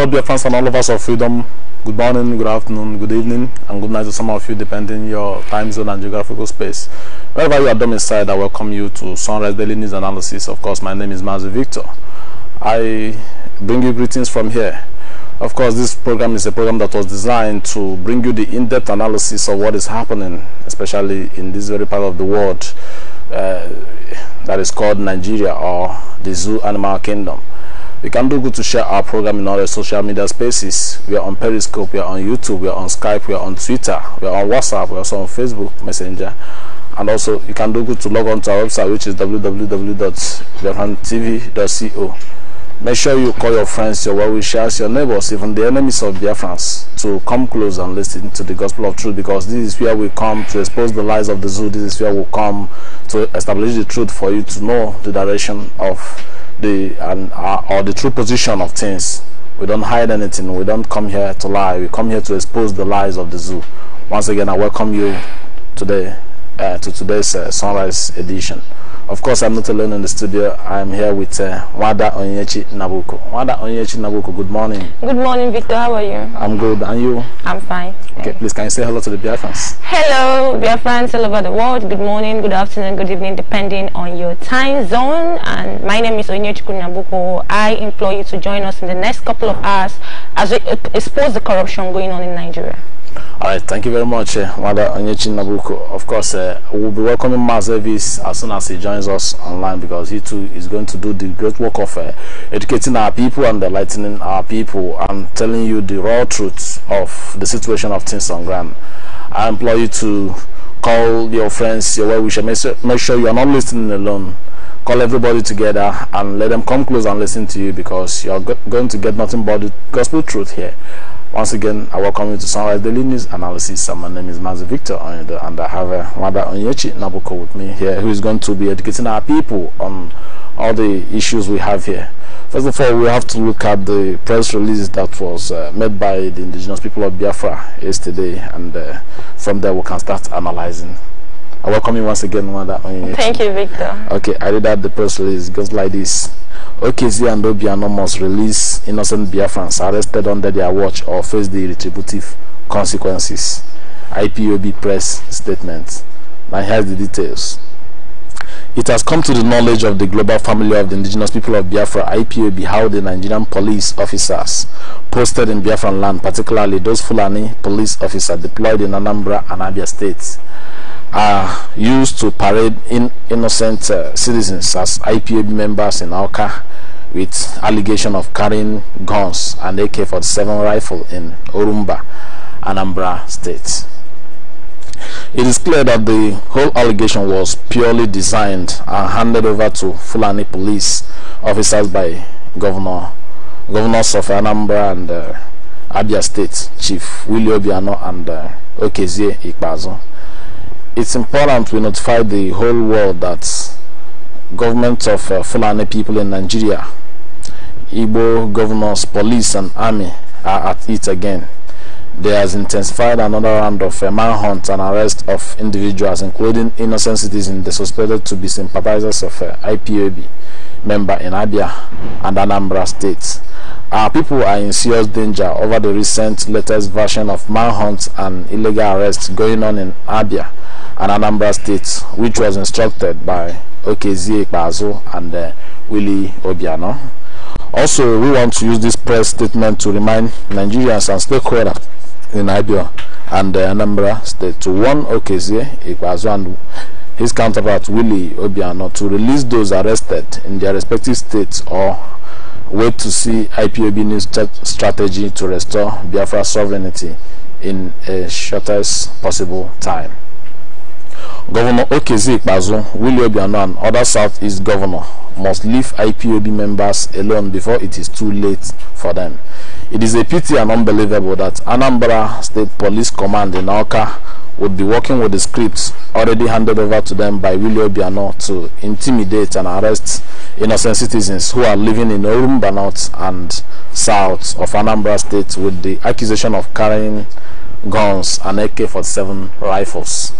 Hello, dear friends and all of us of freedom. Good morning, good afternoon, good evening, and good night to some of you, depending your time zone and geographical space. Wherever you are domiciled, I welcome you to Sunrise Daily News Analysis. Of course, my name is Mazi Victor. I bring you greetings from here. Of course, this program is a program that was designed to bring you the in-depth analysis of what is happening, especially in this very part of the world uh, that is called Nigeria or the Zoo Animal Kingdom. We can do good to share our program in all the social media spaces. We are on Periscope, we are on YouTube, we are on Skype, we are on Twitter, we are on WhatsApp, we are also on Facebook Messenger. And also, you can do good to log on to our website, which is www.biafrantv.co. Make sure you call your friends, your well-wishers, your neighbors, even the enemies of Biafrans to come close and listen to the gospel of truth because this is where we come to expose the lies of the zoo. This is where we come to establish the truth for you to know the direction of the and uh, or the true position of things. We don't hide anything. We don't come here to lie. We come here to expose the lies of the zoo. Once again, I welcome you today uh, to today's uh, sunrise edition. Of course, I'm not alone in the studio. I'm here with uh, Wada Onyechi Nabuko. Wada Onyechi Nabuko, good morning. Good morning, Victor. How are you? I'm good. And you? I'm fine. Okay, please, can you say hello to the fans? Hello, fans all over the world. Good morning, good afternoon, good evening, depending on your time zone. And my name is Onyechi Nabuko. I implore you to join us in the next couple of hours as we expose the corruption going on in Nigeria. all right thank you very much uh, Onyechi Nabuko of course uh, we'll be welcoming Mas as soon as he joins us online because he too is going to do the great work of uh, educating our people and enlightening our people and telling you the raw truth of the situation of things on ground I implore you to call your friends your well wisher make sure you are not listening alone call everybody together and let them come close and listen to you because you're go going to get nothing but the gospel truth here once again, I welcome you to Sunrise Daily News Analysis. And my name is Mazi Victor Onyudo, and I have uh, Mother Onyechi Nabuko with me here, who is going to be educating our people on all the issues we have here. First of all, we have to look at the press release that was uh, made by the indigenous people of Biafra yesterday, and uh, from there we can start analyzing I welcome you once again, Mother. Thank you, Victor. Okay, I read out the press release. It goes like this. OKZ and Obiano must release innocent Biafrans arrested under their watch or face the retributive consequences. IPOB press statement. Now here's the details. It has come to the knowledge of the global family of the indigenous people of Biafra, IPOB, how the Nigerian police officers posted in Biafran land, particularly those Fulani police officers deployed in Anambra and Abia states, are used to parade in innocent uh, citizens as IPA members in Alka, with allegation of carrying guns and AK-47 rifle in Orumba, Anambra State. It is clear that the whole allegation was purely designed and handed over to Fulani police officers by Governor Governors of Anambra and uh, Abia State Chief Willie Obiano and uh, Okezie it's important we notify the whole world that government of uh, Fulani people in Nigeria, Igbo governors, police and army are at it again. There has intensified another round of uh, manhunt and arrest of individuals, including innocent citizens the suspected to be sympathizers of uh, IPOB member in Abia and Anambra states. Our people are in serious danger over the recent latest version of manhunt and illegal arrests going on in Abia and Anambra State, which was instructed by Okezie Ekpazo and uh, Willie Obiano. Also, we want to use this press statement to remind Nigerians and stakeholders in Ibia and uh, Anambra State to warn Okezie Ekpazo and his counterpart Willie Obiano to release those arrested in their respective states or wait to see IPOB new strategy to restore Biafra sovereignty in a shortest possible time. Governor Okeze Ikpazu, William Obiano and other Southeast governor must leave IPOB members alone before it is too late for them. It is a pity and unbelievable that Anambra State Police Command in Oka would be working with the scripts already handed over to them by William Biano to intimidate and arrest innocent citizens who are living in Orumba North and South of Anambra State with the accusation of carrying guns and AK-47 rifles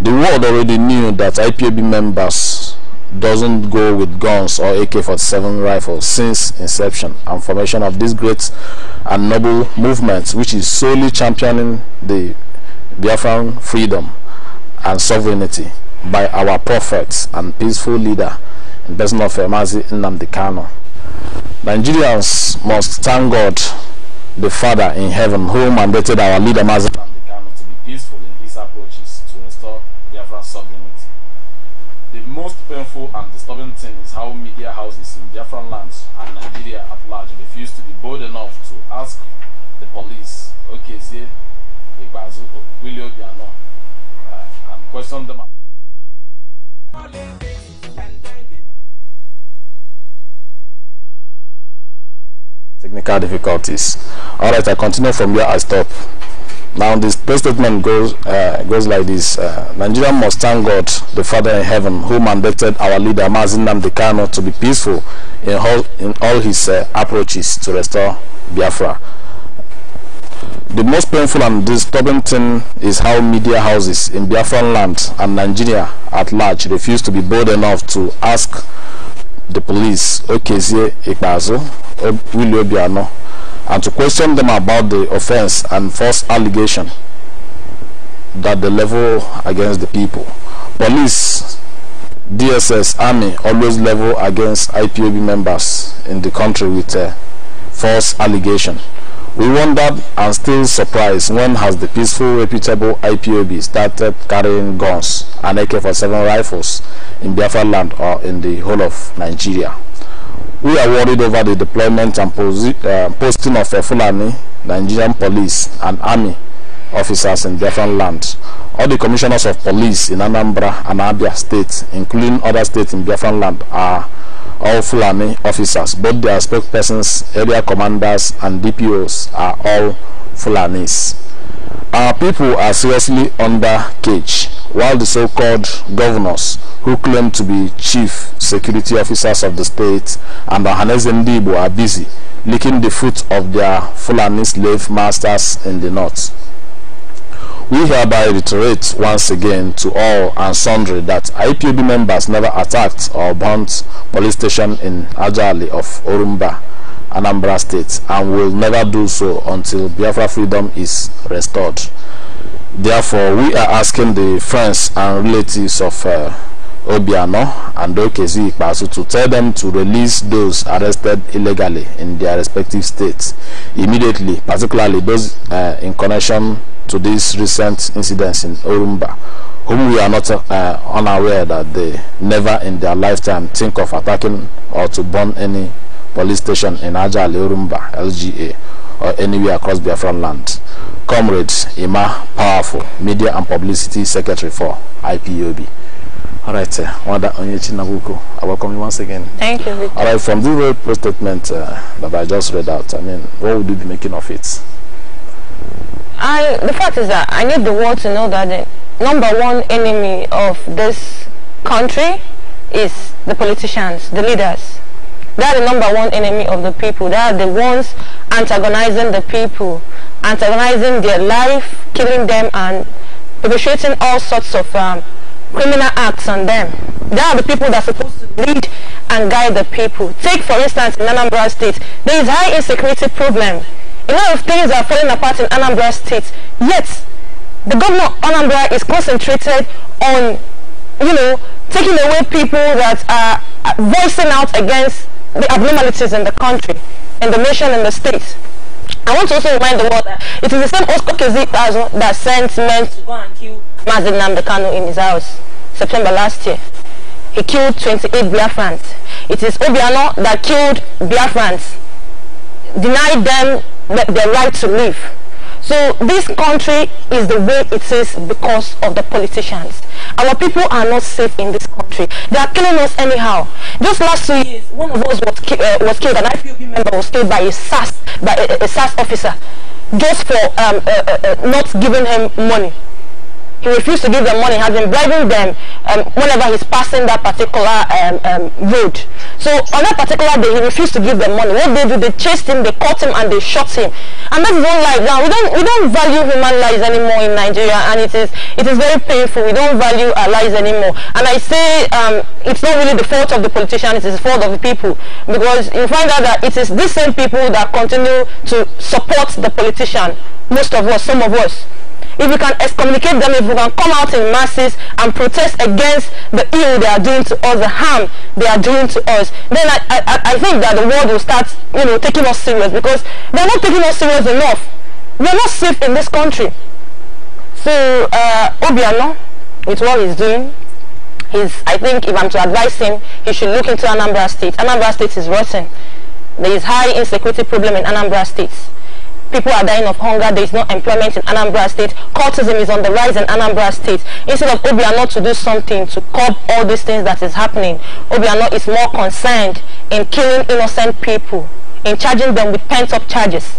the world already knew that IPOB members doesn't go with guns or AK-47 rifles since inception and formation of this great and noble movement which is solely championing the Biafran freedom and sovereignty by our prophets and peaceful leader in person of Emazi Nnamdi Nigerians must thank God the Father in heaven who mandated our leader Mazi The most painful and disturbing thing is how media houses in Biafran lands and Nigeria at large refuse to be bold enough to ask the police, Okezie, Ibazu, Willie Obiano, uh, and question them. Technical difficulties. Alright, I continue from where I stop. Now this prayer statement goes uh, goes like this: uh, Nigeria must thank God, the Father in heaven, who mandated our leader Mazin Dekano to be peaceful in all in all his uh, approaches to restore Biafra. The most painful and disturbing thing is how media houses in Biafran land and Nigeria at large refuse to be bold enough to ask the police, Okezie Ikbazo, Willie Obiano, and to question them about the offense and false allegation that they level against the people. Police, DSS, Army always level against IPOB members in the country with a uh, false allegation. We wondered and still surprised when has the peaceful, reputable IPOB started carrying guns and AK-47 rifles in Biafra land or in the whole of Nigeria. We are worried over the deployment and uh, posting of a Fulani, Nigerian police, and army officers in different lands. All the commissioners of police in Anambra and Abia states, including other states in Biafran land, are all Fulani officers. Both their spokespersons, area commanders, and DPOs are all Fulanis. Our people are seriously under cage. while the so-called governors who claim to be chief security officers of the state and Ohanaeze Ndigbo are busy licking the foot of their Fulani slave masters in the north. We hereby reiterate once again to all and sundry that IPOB members never attacked or burnt police station in Ajali of Orumba, Anambra State, and will never do so until Biafra freedom is restored. Therefore, we are asking the friends and relatives of uh, Obiano and Okezi Ikpasu to tell them to release those arrested illegally in their respective states immediately, particularly those uh, in connection to these recent incidents in Orumba, whom we are not uh, unaware that they never in their lifetime think of attacking or to burn any police station in Ajali Orumba, LGA, or anywhere across Biafran land. Comrades Ima Powerful, Media and Publicity Secretary for IPOB. All right, Wanda Onyechi Nabuko, I welcome you once again. Thank you. Victor. All right, from the very press statement uh, that I just read out, I mean, what would you be making of it? I, the fact is that I need the world to know that the number one enemy of this country is the politicians, the leaders. They are the number one enemy of the people. They are the ones antagonizing the people, antagonizing their life, killing them and perpetrating all sorts of um, criminal acts on them. They are the people that are supposed to lead and guide the people. Take for instance in Anambra State, there is high insecurity problem. A lot of things are falling apart in Anambra State, yet the governor of Anambra is concentrated on, you know, taking away people that are uh, voicing out against the abnormalities in the country, in the nation, in the states. I want to also remind the world that it is the same Oscar Kezi that sent men to go and kill Mazin Namdekano in his house September last year. He killed 28 Biafrans. It is Obiano that killed Biafrans, denied them their right to live. So this country is the way it is because of the politicians. Our people are not safe in this country. They are killing us anyhow. Just last two years, one of us was, ki uh, was killed, an IPOB member was killed by a SAS, by a, a SAS officer, just for um, uh, uh, uh not giving him money. he refused to give them money, has been bribing them um, whenever he's passing that particular um, um, road. So on that particular day, he refused to give them money. What they do, they chased him, they caught him, and they shot him. And that's own life. Now we don't we don't value human lives anymore in Nigeria, and it is it is very painful. We don't value our lives anymore. And I say um, it's not really the fault of the politician; it is the fault of the people because you find out that it is these same people that continue to support the politician. Most of us, some of us if we can excommunicate them, if we can come out in masses and protest against the ill they are doing to us, the harm they are doing to us, then I, I, I think that the world will start, you know, taking us serious because they're not taking us serious enough. We're not safe in this country. So, uh, Obiano, with what he's doing, he's, I think if I'm to advise him, he should look into Anambra State. Anambra State is rotten. There is high insecurity problem in Anambra State people are dying of hunger, there is no employment in Anambra State, cultism is on the rise in Anambra State. Instead of Obiano to do something to curb all these things that is happening, Obiano is more concerned in killing innocent people, in charging them with pent-up charges.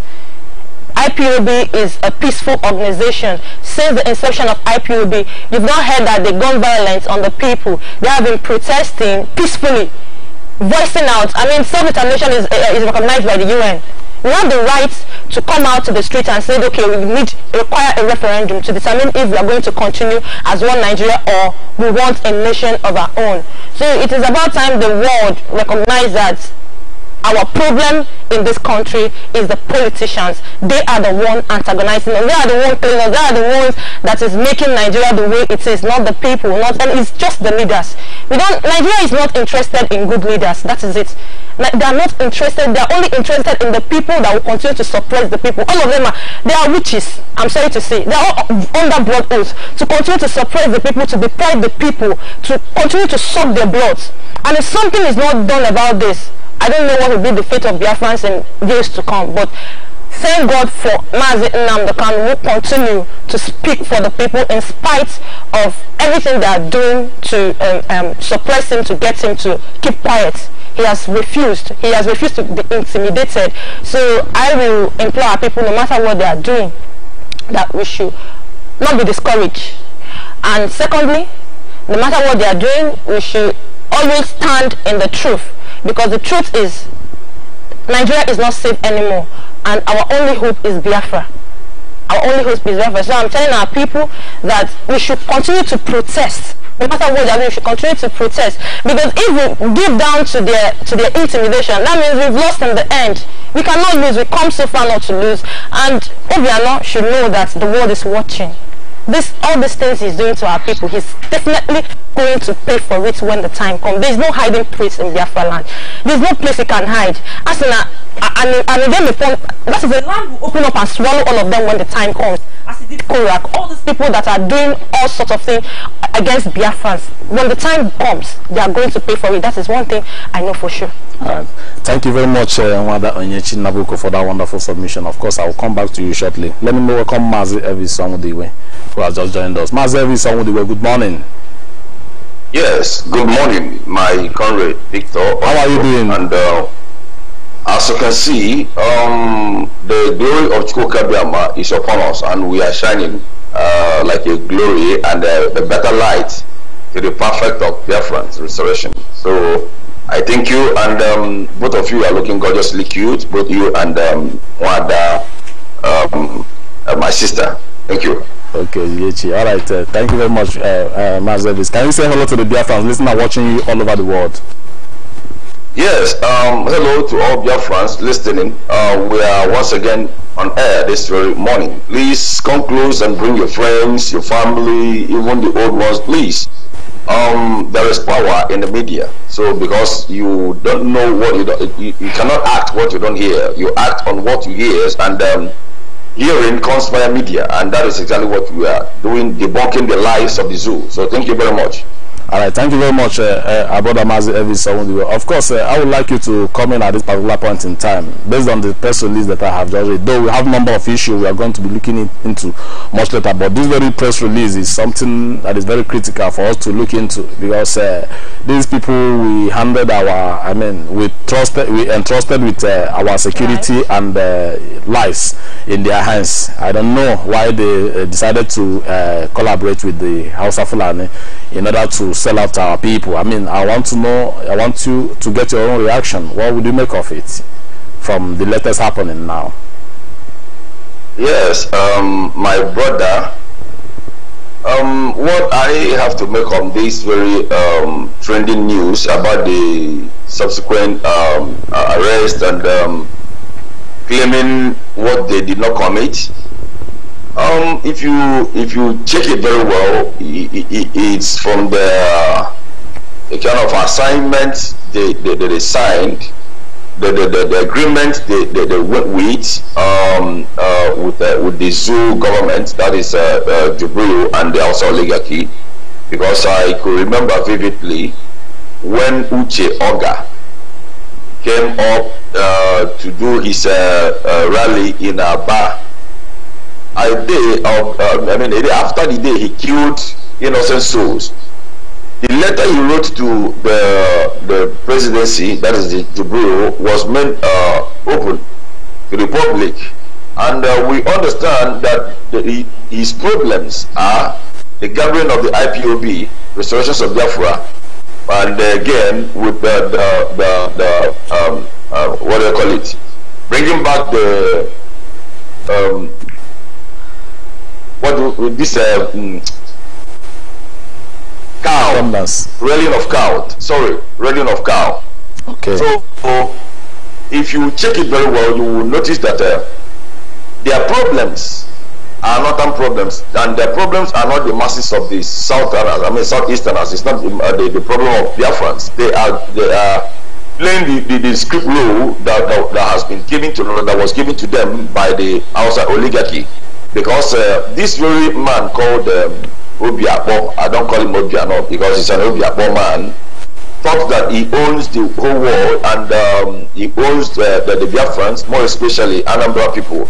IPOB is a peaceful organization. Since the inception of IPOB, you've not heard that the gun violence on the people. They have been protesting peacefully, voicing out. I mean, self-determination is, uh, is recognized by the UN. We have the right to come out to the street and say, okay, we need require a referendum to determine if we are going to continue as one Nigeria or we want a nation of our own. So it is about time the world recognizes that Our problem in this country is the politicians. They are the one antagonizing us. They are the one playing us. They are the ones that is making Nigeria the way it is, not the people. Not and it's just the leaders. We don't. Nigeria is not interested in good leaders. That is it. They are not interested. They are only interested in the people that will continue to suppress the people. All of them are. They are witches. I'm sorry to say. They are all under blood oath to continue to suppress the people, to deprive the people, to continue to suck their blood. And if something is not done about this, I don't know what will be the fate of Biafrans in years to come, but thank God for Mazi Nnamdokan who continue to speak for the people in spite of everything they are doing to um, um, suppress him, to get him to keep quiet. He has refused. He has refused to be intimidated. So I will implore our people, no matter what they are doing, that we should not be discouraged. And secondly, no matter what they are doing, we should always stand in the truth Because the truth is, Nigeria is not safe anymore. And our only hope is Biafra. Our only hope is Biafra. So I'm telling our people that we should continue to protest. No matter what, we should continue to protest. Because if we give down to their, to their intimidation, that means we've lost in the end. We cannot lose. We come so far not to lose. And Obiano should know that the world is watching this all these things he's doing to our people, he's definitely going to pay for it when the time comes. There's no hiding place in Biafra land. There's no place he can hide. As in, a, uh, uh, and, and then the that the land will open up and swallow all of them when the time comes. As it did Korak, all people that are doing all sorts of things against Biafrans. When the time comes, they are going to pay for it. That is one thing I know for sure. Right. Thank you very much, uh, Onyechi Nabuko, for that wonderful submission. Of course, I will come back to you shortly. Let me welcome Mazi Evi Samudiwe, who has just joined us. Mazi Evi Samudiwe, good morning. Yes, good morning, my comrade Victor. How are you doing? And uh, as you can see, um, the glory of Chukwu Kabiyama is upon us, and we are shining Uh, like a glory and a, a better light to the perfect of Biafran's restoration. So I thank you, and um, both of you are looking gorgeously cute, both you and um, Wanda, um, uh, my sister. Thank you. Okay, Yechi. All right. Uh, thank you very much, uh, uh, Mazelis. Can you say hello to the Biafrans listening and watching you all over the world? Yes, um, hello to all friends listening. Uh, we are once again on air this very morning. Please come close and bring your friends, your family, even the old ones, please. Um, there is power in the media. So because you don't know what you don't, you, you cannot act what you don't hear. You act on what you hear, and um, hearing comes via media, and that is exactly what we are doing, debunking the lies of the zoo. So thank you very much. All right, thank you very much, uh, uh Mazi Evis Of course, uh, I would like you to come in at this particular point in time, based on the press release that I have just read. Though we have a number of issues we are going to be looking in, into much later, but this very press release is something that is very critical for us to look into because uh, these people we handed our, I mean, we trusted, we entrusted with uh, our security right. and uh, lives in their hands. I don't know why they decided to collaborate with the House of Fulani in order to sell out our people? I mean, I want to know, I want you to get your own reaction. What would you make of it from the latest happening now? Yes, um, my brother, um, what I have to make on this very um, trending news about the subsequent um, arrest and um, claiming what they did not commit um, if you if you check it very well, it, it, it's from the, the kind of assignment they, they, they signed, the, the, the, the agreement they, they, they went with um, uh, with, with the zoo government, that is uh, uh, Jubril and the also oligarchy, because I could remember vividly when Uche Oga came up uh, to do his uh, uh, rally in Aba a day of, um, I mean, a day after the day he killed innocent souls. The letter he wrote to the, the presidency, that is the, the bureau, was meant uh, open to the public. And uh, we understand that the, his problems are the gathering of the IPOB, Restoration of Biafra, and again with the, the, the, the um, uh, what do you call it, bringing back the um, what do, this uh, mm, cow Rallying of cow sorry rallying of cow okay so, so if you check it very well you will notice that uh, their problems are northern problems and their problems are not the masses of the southerners i mean southeasterners it's not the, uh, the, the problem of friends. they are they are playing the, the, the script role that, that, that has been given to that was given to them by the outside oligarchy because uh, this very man called um, Obiakpo, I don't call him Obiano because he's an Obiakpo man, thought that he owns the whole world and um, he owns the, the, the Biafrans, more especially Anambra people.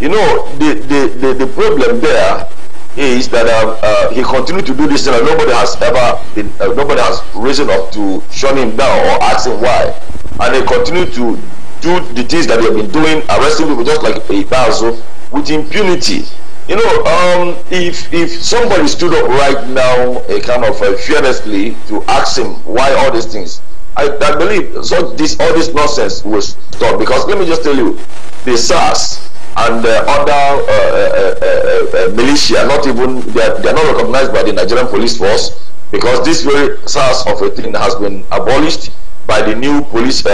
You know, the, the, the, the problem there is that uh, uh, he continued to do this and nobody has ever been, uh, nobody has risen up to shut him down or ask him why. And he continued to do the things that he have been doing, arresting people just like a Ibazo with impunity. You know, um, if if somebody stood up right now, a kind of uh, fearlessly, to ask him why all these things, I, I believe so this all this nonsense will stop. Because let me just tell you, the SARS and other uh, uh, uh, uh, militia, not even they are, they are not recognized by the Nigerian police force, because this very SARS of a thing has been abolished by the new police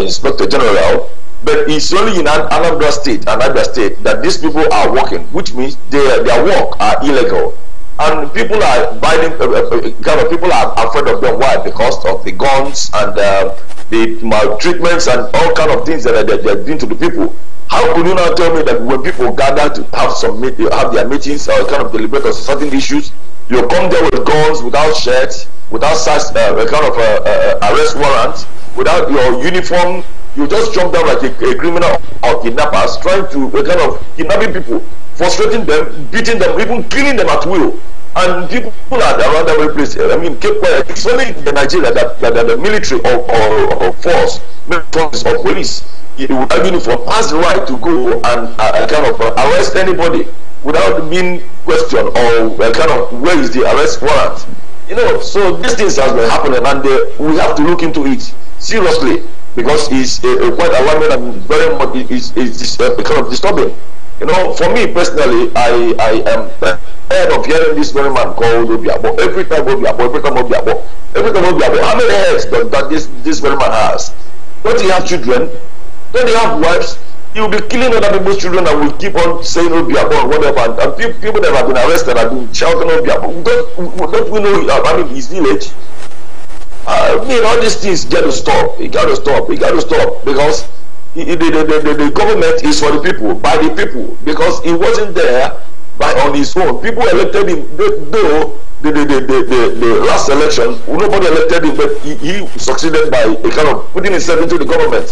inspector general but it's only in an, Anambra state, Anambra state, that these people are working, which means their their work are illegal, and people are buying. Uh, uh, uh, kind of people are afraid of them. Why? Because of the guns and uh, the maltreatments and all kind of things that they're, doing to the people. How could you now tell me that when people gather to have some meet, have their meetings or kind of deliberate on certain issues, you come there with guns, without shirts, without such uh, a kind of uh, arrest warrant, without your uniform you just jump down like a, a criminal or kidnappers trying to uh, kind of kidnapping people frustrating them beating them even killing them at will and people are around every place i mean cape quiet it's only in nigeria that that, that the military or or, or force force of police without uniform has the right to go and uh, kind of uh, arrest anybody without being questioned or uh, kind of where is the arrest warrant you know so these things has been happening and uh, we have to look into it seriously because it's a, quite alarming and very much it's is uh, kind of disturbing. You know, for me personally, I I am tired of hearing this very man called Obiabo every time Obiabo every time Obiabo every time Obiabo. How many heads does that this this very man has? Don't he have children? Don't he have wives? He will be killing other people's children and will keep on saying Obiabo and whatever. And, and people that have been arrested have been shouting Obiabo. Don't don't we know? I mean, his village. I mean, all these things got to stop. It got to stop. It got to stop because the, the, the, the, government is for the people, by the people, because he wasn't there by on his own. People elected him, though the, the, the, the, the last election, nobody elected him, but he, he succeeded by a kind of putting himself into the government.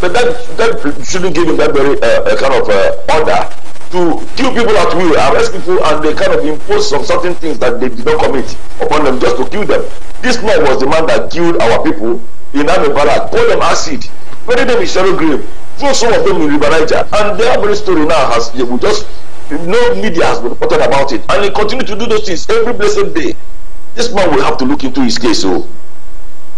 But that, that shouldn't give him that very uh, kind of uh, order to kill people at will, arrest people, and they kind of impose some certain things that they did not commit upon them just to kill them. This man was the man that killed our people in Amebara, called them acid, buried them in shallow grave, threw some of them in River Niger, and their very story now has they will just no media has been reported about it, and he continue to do those things every blessed day. This man will have to look into his case, so oh.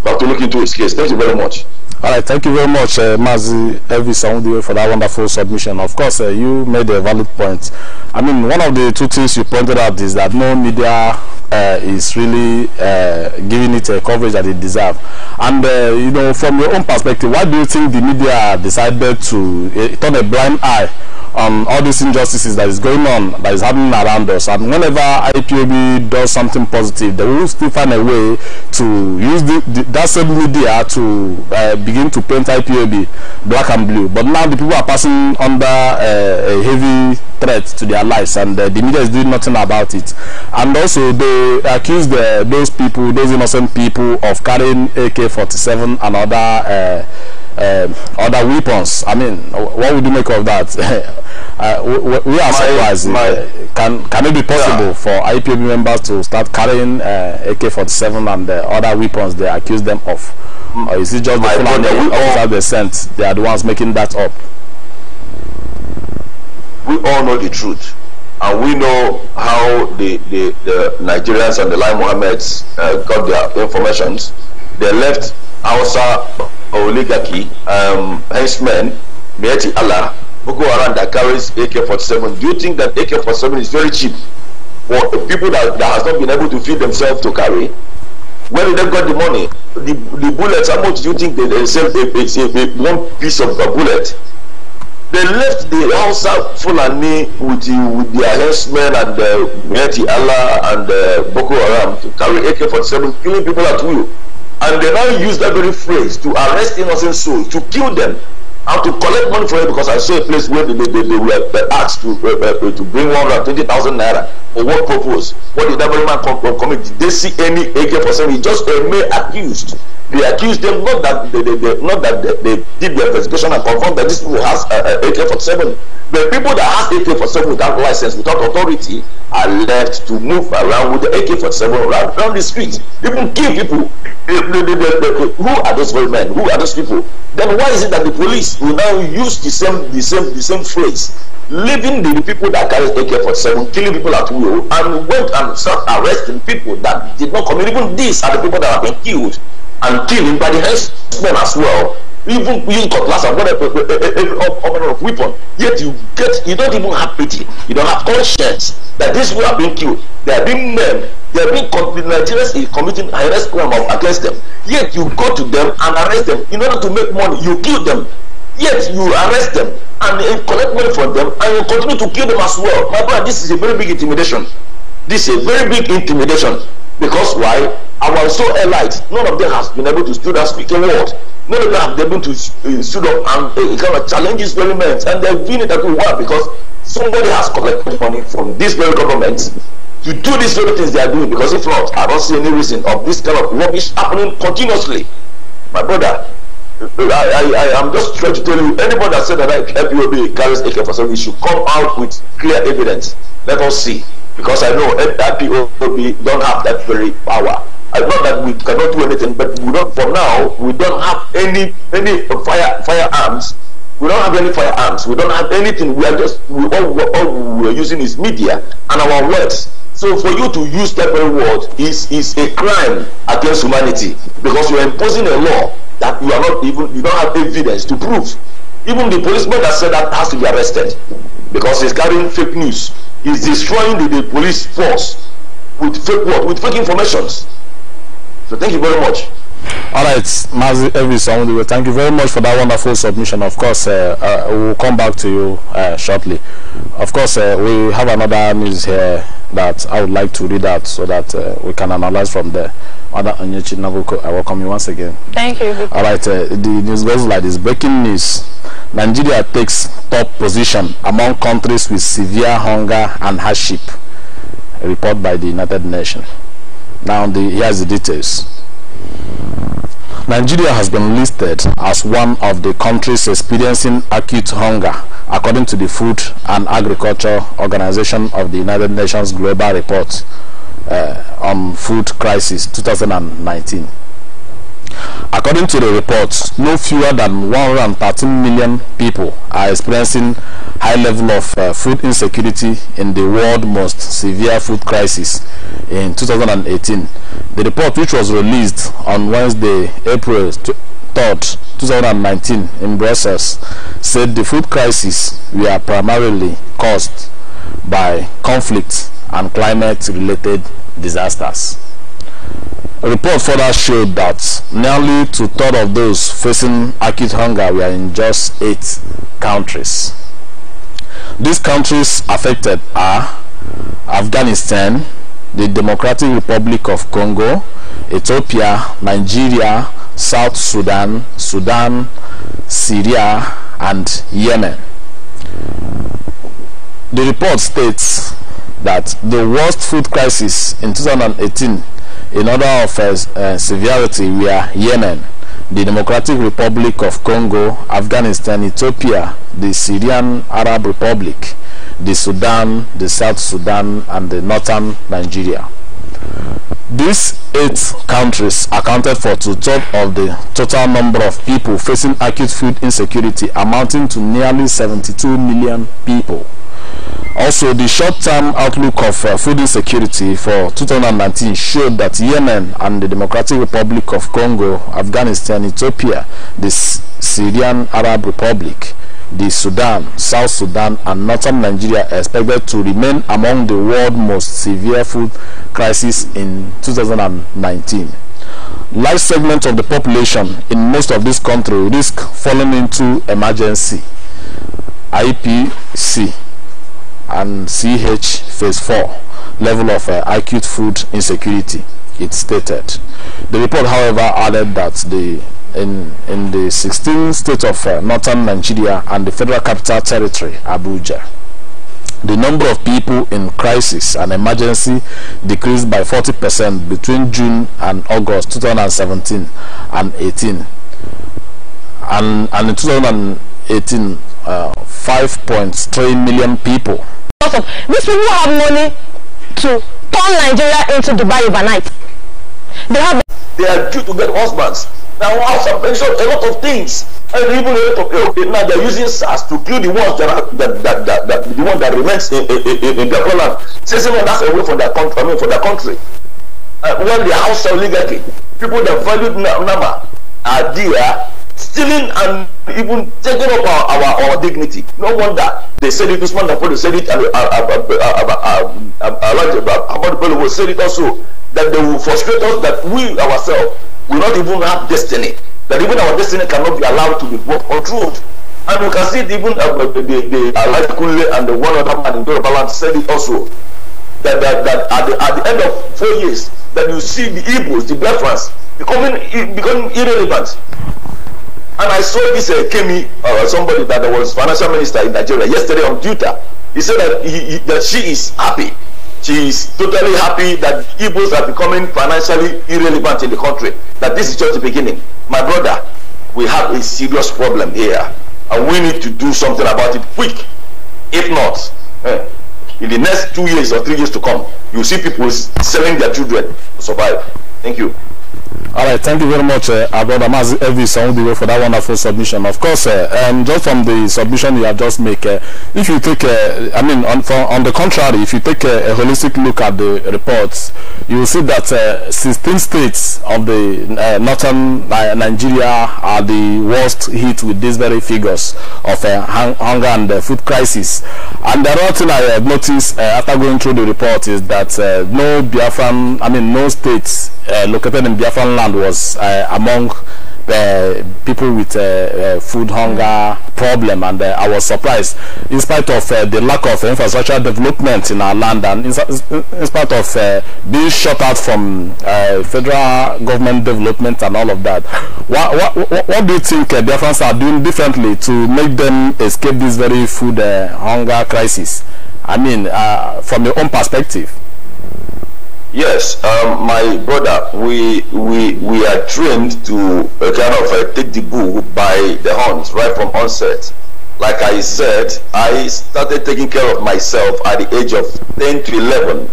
we have to look into his case. Thank you very much. All right, thank you very much, uh, Mazi Elvis Saundiwe, for that wonderful submission. Of course, uh, you made a valid point. I mean, one of the two things you pointed out is that no media uh, is really uh, giving it a coverage that it deserves. And uh, you know, from your own perspective, why do you think the media decided to uh, turn a blind eye on all these injustices that is going on, that is happening around us? And whenever IPOB does something positive, they will still find a way to use the, the, that same media to uh, begin to paint IPOB black and blue. But now the people are passing under uh, a heavy threat to their lives, and uh, the media is doing nothing about it. And also, they accuse the, eh, those people, those innocent people, of carrying AK-47 and other uh, uh, other weapons. I mean, what would you make of that? Uh, we, we, are my, surprised. My, uh, can can it be possible yeah. for IPOB members to start carrying uh, AK-47 and the other weapons they accuse them of? Mm. Or is it just my the Fulani officers they sent? They are the ones making that up. We all know the truth. And we know how the, the, the Nigerians and the Lai Mohammeds uh, got their informations. They left Aosa oligarchy, um, henchmen, Mieti Allah, Boko Haram that carries AK-47, do you think that AK-47 is very cheap for people that, that has not been able to feed themselves to carry? Where did they get the money? The, the bullets, how much do you think they, they sell a, a, a, one piece of a bullet? They left the Hausa Fulani with, the, with the henchmen and the Mieti Allah and the Boko Haram to carry AK-47, killing people at will. And they now use that very phrase to arrest innocent souls, to kill them, and to collect money for it because I saw a place where they, they, they were asked to, uh, uh to bring one twenty thousand naira. For what purpose? What did that man come, come, come Did they see any AK-47? He just a uh, mere accused they accuse them not that they, they, they not that they, they did their investigation and confirm that this people has uh, uh AK-47. The people that have AK-47 without license, without authority, are left to move around with the AK-47 around, around the streets, even kill people. They, they, they, they, they, who are those very men? Who are those people? Then why is it that the police will now use the same the same the same phrase? leaving the people that carry AK-47, killing people at will, and went and start arresting people that did not commit. Even these are the people that have been killed and deal in by the herdsmen as well even using cutlass and whatever all eh, manner eh, eh, of weapon yet you get you don't even have pity you don't have conscience that these people are being killed they are being men they are being Nigerians committing arrest crime against them yet you go to them and arrest them in order to make money you kill them yet you arrest them and uh, collect money from them and you continue to kill them as well my brother this is a very big intimidation this is a very big intimidation Because why? Our so elite? none of them has been able to stood up speaking words. None of them have been able to uh, stood up and uh, kind of challenge experiments. And they've been that we were because somebody has collected money from this very government to do these very things they are doing. Because if not, I don't see any reason of this kind of rubbish happening continuously. My brother, uh, uh, I, I, I, am just trying to tell you, anybody that said that I help you carries ak for some issue. come out with clear evidence. Let us see. Because I know IPOB don't have that very power. I know that we cannot do anything, but we don't, for now, we don't have any any fire firearms. We don't have any firearms. We don't have anything. We are just, we, all, all we are using is media and our words. So for you to use that very word is, is a crime against humanity because you are imposing a law that you are not even, you don't have evidence to prove. Even the policeman that said that has to be arrested because he's carrying fake news. is destroying the, the police force with fake what? With fake informations. So thank you very much. All right, Mazi Elvis thank you very much for that wonderful submission. Of course, uh, uh, we'll come back to you uh, shortly. Of course, uh, we have another news here that I would like to read out so that uh, we can analyze from there. Other Anyechi, Nabuko, I welcome you once again. Thank you. All right, uh, the news goes like this. Breaking news. Nigeria takes top position among countries with severe hunger and hardship. A report by the United Nations. Now, the, here's the details. Nigeria has been listed as one of the countries experiencing acute hunger, according to the Food and Agriculture Organization of the United Nations Global Report uh, on Food Crisis 2019. According to the reports, no fewer than 113 million people are experiencing high level of uh, food insecurity in the world's most severe food crisis in 2018. The report, which was released on Wednesday, April 3rd, 2019 in Brussels, said the food crisis were primarily caused by conflict and climate-related disasters. A report further showed that nearly two-thirds of those facing acute hunger were in just eight countries. These countries affected are Afghanistan, the Democratic Republic of Congo, Ethiopia, Nigeria, South Sudan, Sudan, Syria, and Yemen. The report states that the worst food crisis in 2018 in order of uh, uh, severity we are Yemen, the Democratic Republic of Congo, Afghanistan, Ethiopia, the Syrian Arab Republic, the Sudan, the South Sudan, and the Northern Nigeria. These eight countries accounted for two-thirds of the total number of people facing acute food insecurity amounting to nearly 72 million people. Also, the short-term outlook of uh, food insecurity for 2019 showed that Yemen and the Democratic Republic of Congo, Afghanistan, Ethiopia, the Syrian Arab Republic, the Sudan, South Sudan, and northern Nigeria are expected to remain among the world's most severe food crisis in 2019. Large segments of the population in most of these countries risk falling into emergency, IPC, and CH phase 4 level of uh, acute food insecurity it stated the report however added that the in in the 16 states of uh, northern nigeria and the federal capital territory abuja the number of people in crisis and emergency decreased by 40% between June and August 2017 and 18 and, and in 2018 5.3 million people. Awesome. These people have money to turn Nigeria into Dubai overnight. They have. They are due to get husbands. Now, I have mentioned a lot of things, and even a lot of people. now they're using SARS to kill the ones that are that that, that, that the one that remains in, in, in in their homeland. Chasing them back away from their country. I mean, for their country. Uh, when they are also oligarchy, people that valued number are there stealing and even taking up our, our, our dignity. No wonder they said it, Usman Dapolo said it, and Ahmad Bello say it also, that they will frustrate us, that we ourselves will not even have destiny, that even our destiny cannot be allowed to be worked controlled. And we can see it even uh, the, the, Elijah Kunle and the one other man in Yoruba said it also, that, that, that at, the, at the end of four years, that you see the Igbos, the Biafrans, becoming, becoming irrelevant. And I saw this uh, Kemi, uh, somebody that was financial minister in Nigeria yesterday on Twitter. He said that, he, he, that she is happy. She is totally happy that Igbos are becoming financially irrelevant in the country. That this is just the beginning. My brother, we have a serious problem here. And we need to do something about it quick. If not, eh, in the next two years or three years to come, you see people selling their children to survive. Thank you. All right, thank you very much, uh, brother Mazi Elvis Ondiwe, for that wonderful submission. Of course, uh, um, just from the submission you have just made, uh, if you take, uh, I mean, on, for, on, the contrary, if you take a holistic look at the reports, you will see that uh, 16 states of the uh, northern uh, Nigeria are the worst hit with these very figures of hunger and food crisis. And the other thing I have noticed after going through the report is that no Biafran, I mean, no states located in Biafran Scotland was uh, among uh, people with uh, uh, food hunger problem and uh, I was surprised in spite of uh, the lack of infrastructure development in our land and in, in spite of being shut out from federal government development and all of that what, what, what do you think uh, Biafrans are doing differently to make them escape this very food hunger crisis I mean from your own perspective Yes, um, my brother, we we we are trained to uh, kind of uh, take the bull by the horns right from onset. Like I said, I started taking care of myself at the age of 10 to 11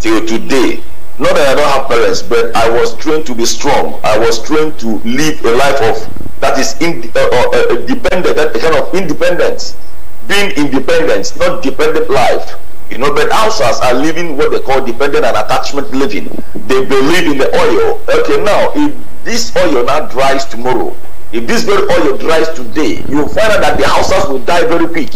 till today. Not that I don't have parents, but I was trained to be strong. I was trained to live a life of that is in, uh, uh, uh dependent, that kind of independence, being independent, not dependent life. You know, but houses are living what they call dependent and attachment living. They believe in the oil. Okay, now if this oil now dries tomorrow, if this very oil dries today, you'll find out that the houses will die very quick.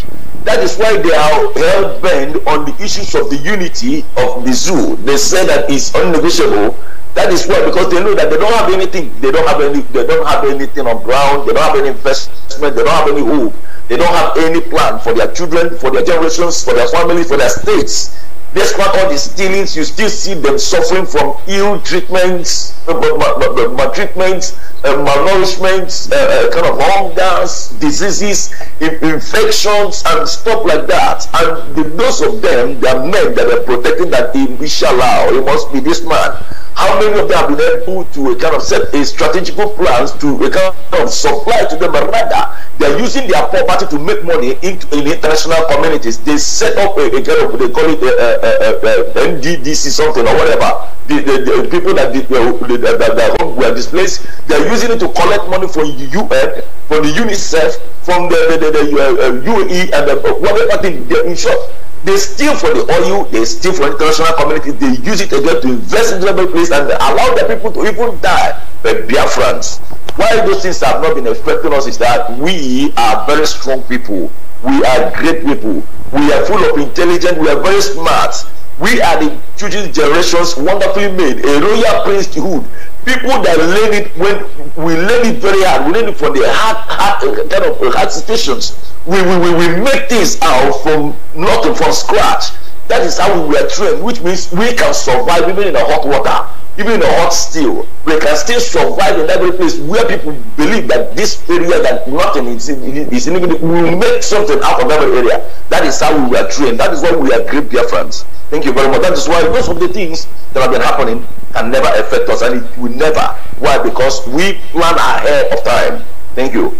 That is why they are hell bent on the issues of the unity of the zoo. They say that it's unnegotiable. That is why, because they know that they don't have anything. They don't have any. They don't have anything on ground. They don't have any investment. They don't have any hope. They don't have any plan for their children, for their generations, for their families, for their states. Despite all the stealings, you still see them suffering from ill treatments, uh, maltreatments, uh, malnourishments, malnourishment, uh, kind of hungers, diseases, infections, and stuff like that. And the, those of them, they are men that are protecting that inshallah, oh, it must be this man. How many of them have been able to kind of set a strategic plans to kind of supply to them, but rather they're using their property to make money in, in international communities. They set up a, a, kind of they call it a, a, a NDDC something or whatever. The, the, the people that, did, were, that, that were displaced, they're using it to collect money from the UN, from the UNICEF, from the, the, the, the UAE, uh, uh, and uh, whatever thing. In short, they steal from the oil, they steal from international community, they use it again to invest in development place and allow the people to even die. But dear friends, why those things have not been affecting us is that we are very strong people. We are great people. We are full of intelligence. We are very smart. We are the future generations wonderfully made, a royal priesthood, people that learn it when we learn it very hard we learn it from the hard hard uh, kind of uh, hard situations we we we, we make things out from nothing from scratch that is how we were trained which means we can survive even in a hot water even in a hot steel we can still survive in every place where people believe that this area that nothing is in is in we will make something out of every area that is how we were trained that is why we are great dear friends thank you very much that is why those of the things that have been happening can never affect us and it will never. Why? Because we plan ahead of time. Thank you.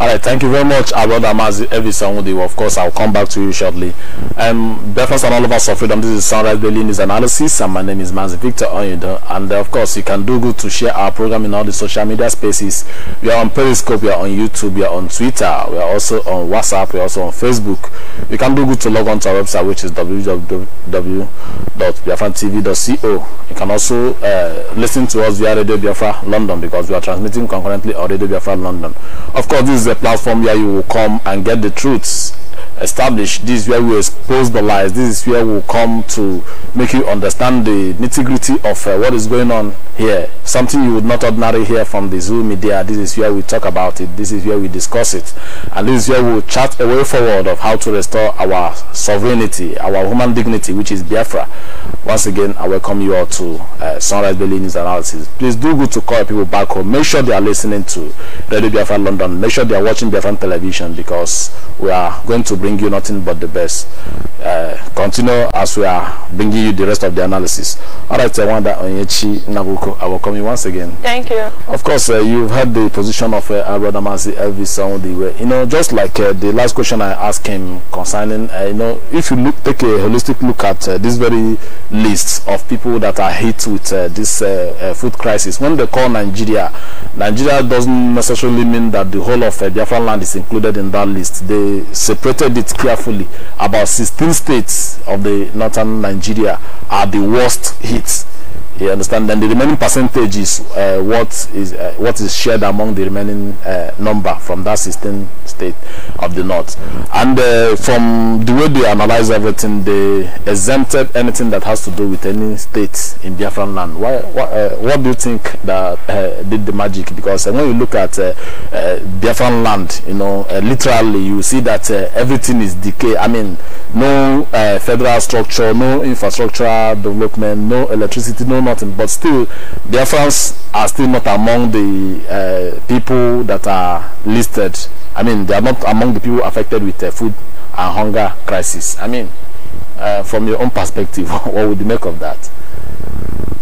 All right, thank you very much, our brother every Evisanwudi. Of course, I'll come back to you shortly. Um, breakfast and all of us of freedom. This is Sunrise Daily News Analysis, and my name is Mazi Victor Oyundo. And uh, of course, you can do good to share our program in all the social media spaces. We are on Periscope, we are on YouTube, we are on Twitter, we are also on WhatsApp, we are also on Facebook. You can do good to log on to our website, which is www.biafrantv.co. You can also uh, listen to us via Radio Biafra London because we are transmitting concurrently on Radio Biafra London. Of course, this is a platform where you will come and get the truths Establish this is where we expose the lies this is where we'll come to make you understand the nitty-gritty of uh, what is going on here something you would not ordinarily hear from the zoo media this is where we talk about it this is where we discuss it and this is where we'll chart a way forward of how to restore our sovereignty our human dignity which is biafra once again i welcome you all to uh, sunrise daily news analysis please do good to call people back home make sure they are listening to radio biafra london make sure they are watching biafra television because we are going to bring you nothing but the best. Uh, continue as we are bringing you the rest of the analysis. All right, I wonder Onyechi Nabuko, I will come in once again. Thank you. Of course, uh, you've had the position of uh, Brother Masi Elvis Saundiwe. Uh, you know, just like uh, the last question I asked him concerning, uh, you know, if you look, take a holistic look at uh, this very list of people that are hit with this food crisis, when they call Nigeria, Nigeria doesn't necessarily mean that the whole of Biafra land is included in that list. They separate calculated it carefully. About 16 states of the northern Nigeria are the worst hit you understand? Then the remaining percentage is uh, what is uh, what is shared among the remaining uh, number from that 16 state of the north. And uh, from the way they analyze everything, they exempted anything that has to do with any state in Biafran land. Why? Uh, what do you think that uh, did the magic? Because when you look at Biafran land, you know, literally you see that everything is decay. I mean, no federal structure, no infrastructure development, no electricity still know nothing. But still, Biafrans are still not among the uh, people that are listed. I mean, they are not among the people affected with uh, food and hunger crisis. I mean, uh, from your own perspective, what would you make of that?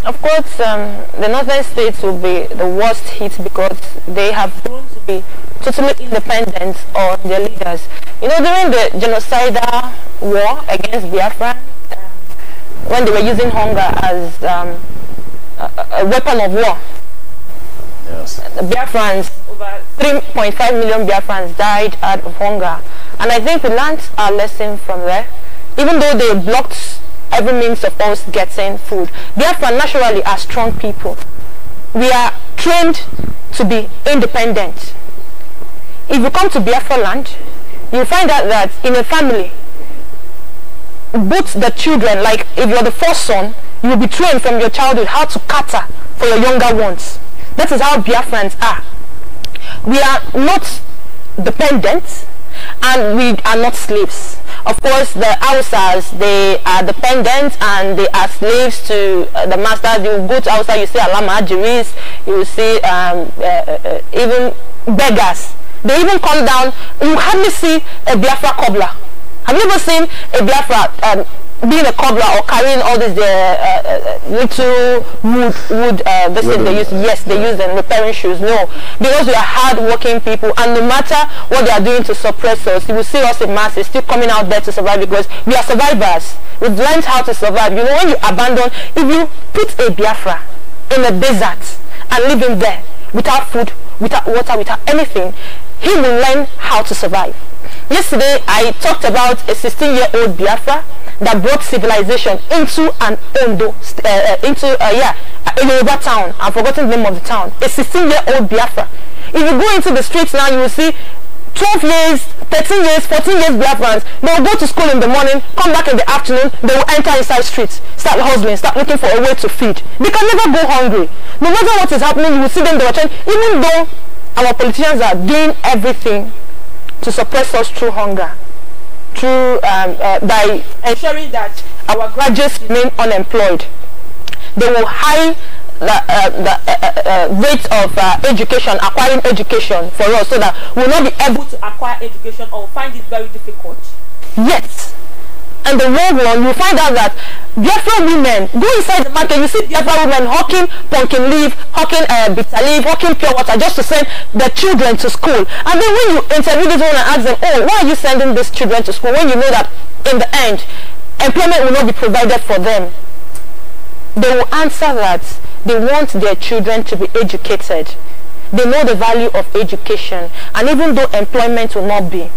Of course, um, the northern states will be the worst hit because they have grown to be totally independent on their leaders. You know, during the genocidal war against Biafrans, when they were using hunger as um, a, a, weapon of war. Yes. The Biafrans, over 3.5 million Biafrans died out of hunger. And I think we learned our lesson from there. Even though they blocked every means of us getting food, Biafrans naturally are strong people. We are trained to be independent. If you come to Biafra land, you find out that in a family, both the children, like if you're the first son, you will be trained from your childhood how to cater for your younger ones. That is how Biafrans are. We are not dependent and we are not slaves. Of course, the Hausas, they are dependent and they are slaves to uh, the masters. You go to Hausa, you see Alama Ajiris, you see um, uh, uh, even beggars. They even come down, you hardly see a Biafra cobbler have you ever seen a black rat um, being a cobbler or carrying all these uh, uh, uh, little wood wood uh, this thing they use yes they use them repairing shoes no because we are hard working people and no matter what they are doing to suppress us you will see us in masses still coming out there to survive because we are survivors we've learned how to survive you know when you abandon if you put a biafra in a desert and leave him there without food without water without anything he will learn how to survive Yesterday, I talked about a 16-year-old Biafra that brought civilization into an Ondo, uh, uh, into, uh, yeah, a town. I've forgotten the name of the town. A 16-year-old Biafra. If you go into the streets now, you will see 12 years, 13 years, 14 years Biafrans, they will go to school in the morning, come back in the afternoon, they will enter inside streets, start hustling, start looking for a way to feed. They can never go hungry. No matter what is happening, you will see them, they will change, even though our politicians are doing everything to suppress us through hunger, through, um, uh, by ensuring that our graduates remain unemployed. They will high the, uh, the uh, uh, uh rate of uh, education, acquiring education for us so that we'll not be able to acquire education or find it very difficult. Yes, and the world one, you find out that Biafra women, go inside the market, you see Biafra women hawking pumpkin leaf, hawking uh, bitter leaf, hawking pure water just to send their children to school. And then when you interview these women and ask them, oh, why are you sending these children to school when you know that in the end, employment will not be provided for them? They will answer that they want their children to be educated. They know the value of education and even though employment will not be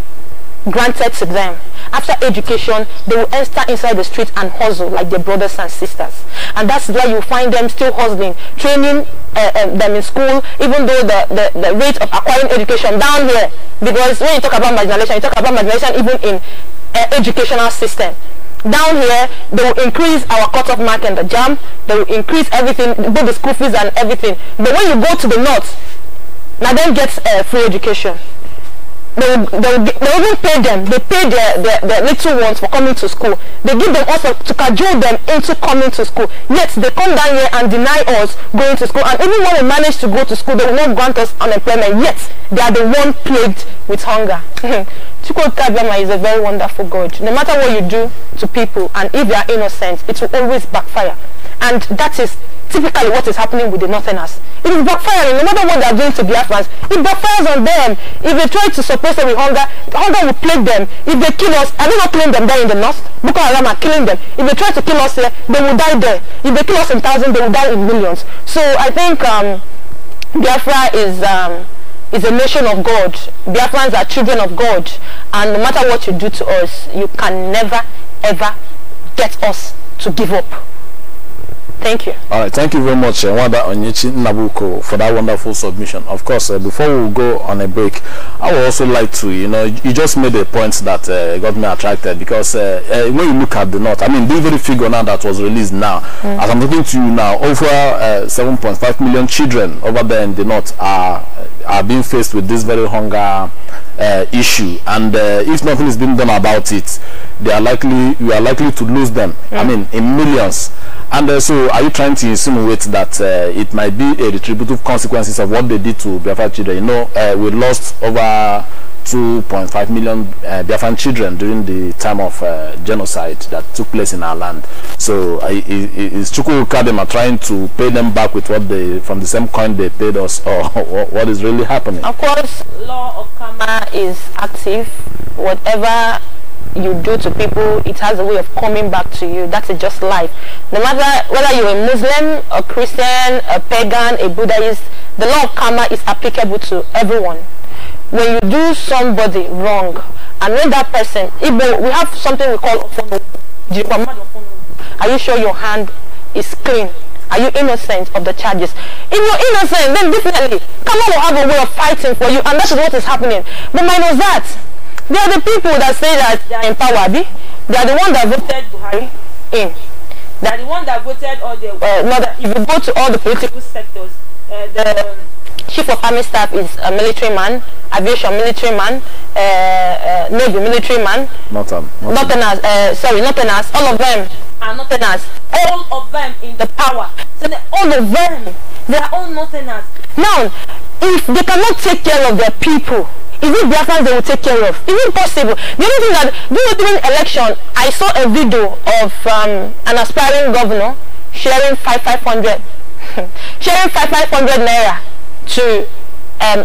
granted to them. After education, they will enter inside the street and hustle like their brothers and sisters. And that's where you find them still hustling, training uh, um, them in school, even though the, the, the rate of acquiring education down here, because when you talk about marginalization, you talk about marginalization even in uh, educational system down here they will increase our cutoff mark and the jam they will increase everything both the school fees and everything but when you go to the north now they get uh, free education they they they even pay them. They pay their, their, their little ones for coming to school. They give them also to cajole them into coming to school. Yet they come down here and deny us going to school. And even when we manage to go to school, they will not grant us unemployment. Yet they are the one plagued with hunger. Chukwukabema is a very wonderful God. No matter what you do to people, and if they are innocent, it will always backfire. And that is typically what is happening with the northerners. It is backfiring. No matter what they are doing to Biafrans, it backfires on them. If they try to support person with hunger, hunger will plague them. If they kill us, are they not killing them there in the north? Boko Haram are killing them. If they try to kill us here, they will die there. If they kill us in thousands, they will die in millions. So I think um, Biafra is... Um, is a nation of God. Biafrans are children of God. And no matter what you do to us, you can never, ever get us to give up. Thank you. All right, thank you very much, eh, Wanda Onyechi Nabuko, for that wonderful submission. Of course, uh, before we go on a break, I would also like to, you know, you just made a point that uh, got me attracted because uh, when you look at the North, I mean, the very figure now that was released now, mm as I'm talking to you now, over 7.5 million children over there in the North are, are being faced with this very hunger issue. And if nothing is being done about it, they are likely you are likely to lose them. I mean, in millions. And uh, so, are you trying to insinuate that uh, it might be a retributive consequences of what they did to Biafra children? You know, uh, we lost over 2.5 million uh, Biafran children during the time of uh, genocide that took place in our land. So, uh, is Chukwukadema trying to pay them back with what they from the same coin they paid us, or what is really happening? Of course, law of karma is active. Whatever you do to people, it has a way of coming back to you. That is just life. No matter whether you're a Muslim, a Christian, a pagan, a Buddhist, the law of karma is applicable to everyone. When you do somebody wrong, and when that person, Igbo, we have something we call Are you sure your hand is clean? Are you innocent of the charges? If you're innocent, then definitely, karma will have a way of fighting for you, and that's what is happening. But minus that, they are the people that say that they are in power. They are the one that voted Buhari in. They are the one that voted all the... Uh, no, that if you go to all the political sectors, uh, the chief of army staff is a military man, aviation military man, uh, uh, navy military man. Northern. Northern. Northerners, uh, sorry, Northerners, all of them are Northerners. All of them in the power. So all of them, they are all Northerners. Now, if they cannot take care of their people, is it Biafrans they will take care of? Is it possible? The only thing that during the election, I saw a video of um, an aspiring governor sharing five five hundred, sharing five five hundred naira to um,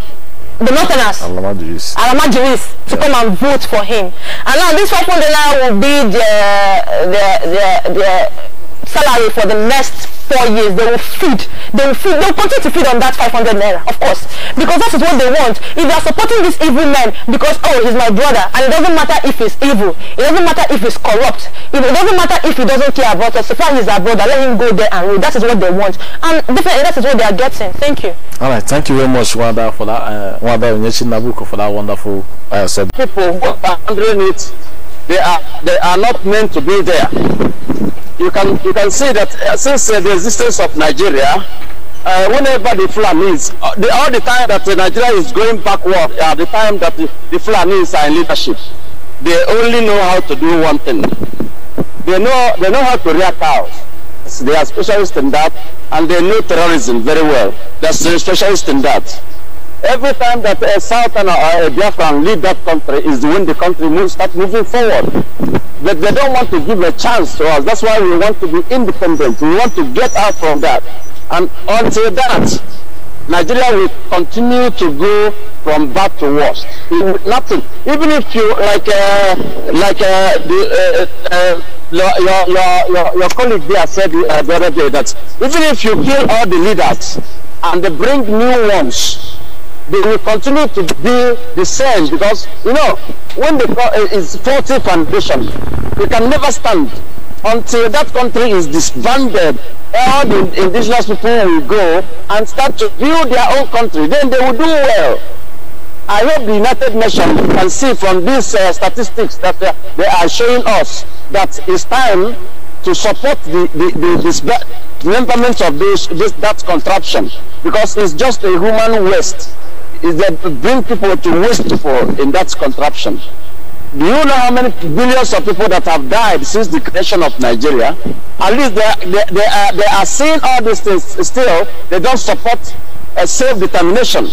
the Northerners, Alamajiris, Alamajiris to yeah. come and vote for him. And now this 500 naira will be the, the, the, the salary for the next four years, they will feed. They will feed. They will continue to feed on that 500 naira, of course, because that is what they want. If they are supporting this evil man because oh he's my brother, and it doesn't matter if he's evil, it doesn't matter if he's corrupt, it doesn't matter if he doesn't care about us. If he's our brother, let him go there and rule. That is what they want, and definitely that is what they are getting. Thank you. All right, thank you very much, Wanda, for that. Uh, Wanda Onyechi Nabuko for that wonderful uh, People who are handling it, they are they are not meant to be there you can you can see that uh, since uh, the existence of Nigeria, uh, whenever the Fulanis, uh, the, all the time that uh, Nigeria is going backward, at the time that the, the Fulanis are in leadership, they only know how to do one thing. They know they know how to rear cows. They are specialists in that, and they know terrorism very well. They're specialists in that. Every time that a uh, Southerner or a uh, Biafran lead that country is when the country moves, start moving forward. But they don't want to give a chance to us. That's why we want to be independent. We want to get out from that. And until that, Nigeria will continue to go from bad to worse. nothing. Even if you like, uh, like uh, the, uh, uh your, your, your, your colleague there said the other day that even if you kill all the leaders and they bring new ones, they will continue to be the same because, you know, when the uh, is faulty foundation, we can never stand until that country is disbanded. All the indigenous people will go and start to build their own country. Then they will do well. I hope the United Nations can see from these uh, statistics that eh, they are showing us that it's time to support the, the, the, the of this, this, that contraption because it's just a human waste is that bring people to waste people in that contraption. Do you know how many billions of people that have died since the creation of Nigeria? At least they, they, they, are, they are seeing all these things still. They don't support a self-determination.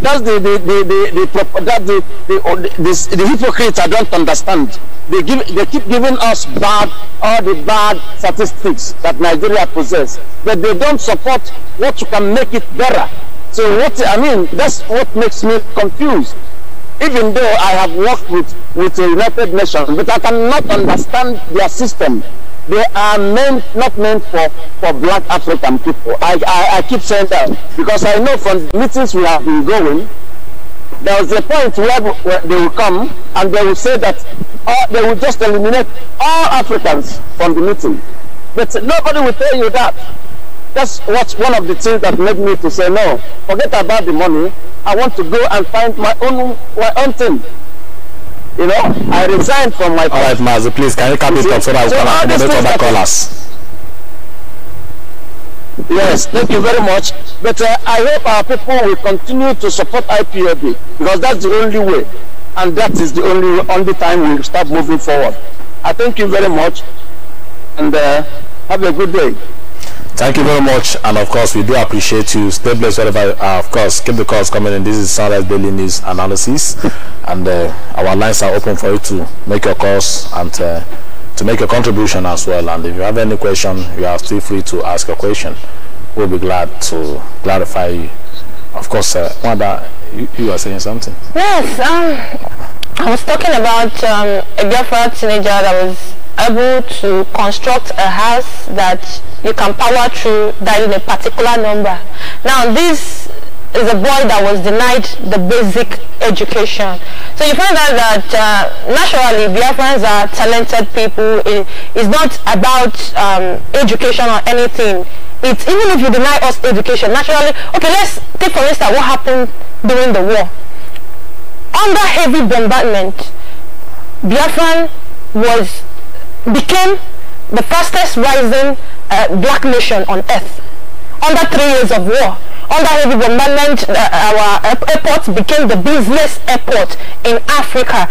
That's the the the the, the, that the, the, the hypocrites I don't understand. They give they keep giving us bad all the bad statistics that Nigeria possesses, but they don't support what you can make it better. So what I mean, that's what makes me confused. Even though I have worked with, with the United Nations, but I cannot understand their system. They are meant not meant for, for black African people. I, I, I keep saying that because I know from meetings we have been going, there was a point where, where they will come and they will say that uh, they will just eliminate all Africans from the meeting. But nobody will tell you that. That's what's one of the things that made me to say, no, forget about the money. I want to go and find my own my own thing. You know, I resigned from my. All right, Mazzy. please can you come in, up so that we can accommodate other callers? Yes, thank you very much. But uh, I hope our people will continue to support IPOB because that's the only way, and that is the only only time we will start moving forward. I thank you very much, and uh, have a good day. Thank you very much, and of course, we do appreciate you. Stay blessed wherever, are of course, keep the calls coming in. This is Sunrise Daily News Analysis, and uh, our lines are open for you to make your calls and uh, to make your contribution as well. And if you have any question, you are still free to ask a question. We'll be glad to clarify you. Of course, uh, Wanda, you, you are saying something. Yes, um, I was talking about um, a Biafra teenager that was able to construct a house that you can power through dialing a particular number. Now this is a boy that was denied the basic education. So you find out that uh, naturally Biafrans are talented people. It, it's not about um, education or anything. It's even if you deny us education, naturally, okay, let's take for instance what happened during the war under heavy bombardment, Biafran was became the fastest rising uh, black nation on earth. Under three years of war, under heavy bombardment, uh, our airport became the busiest airport in Africa.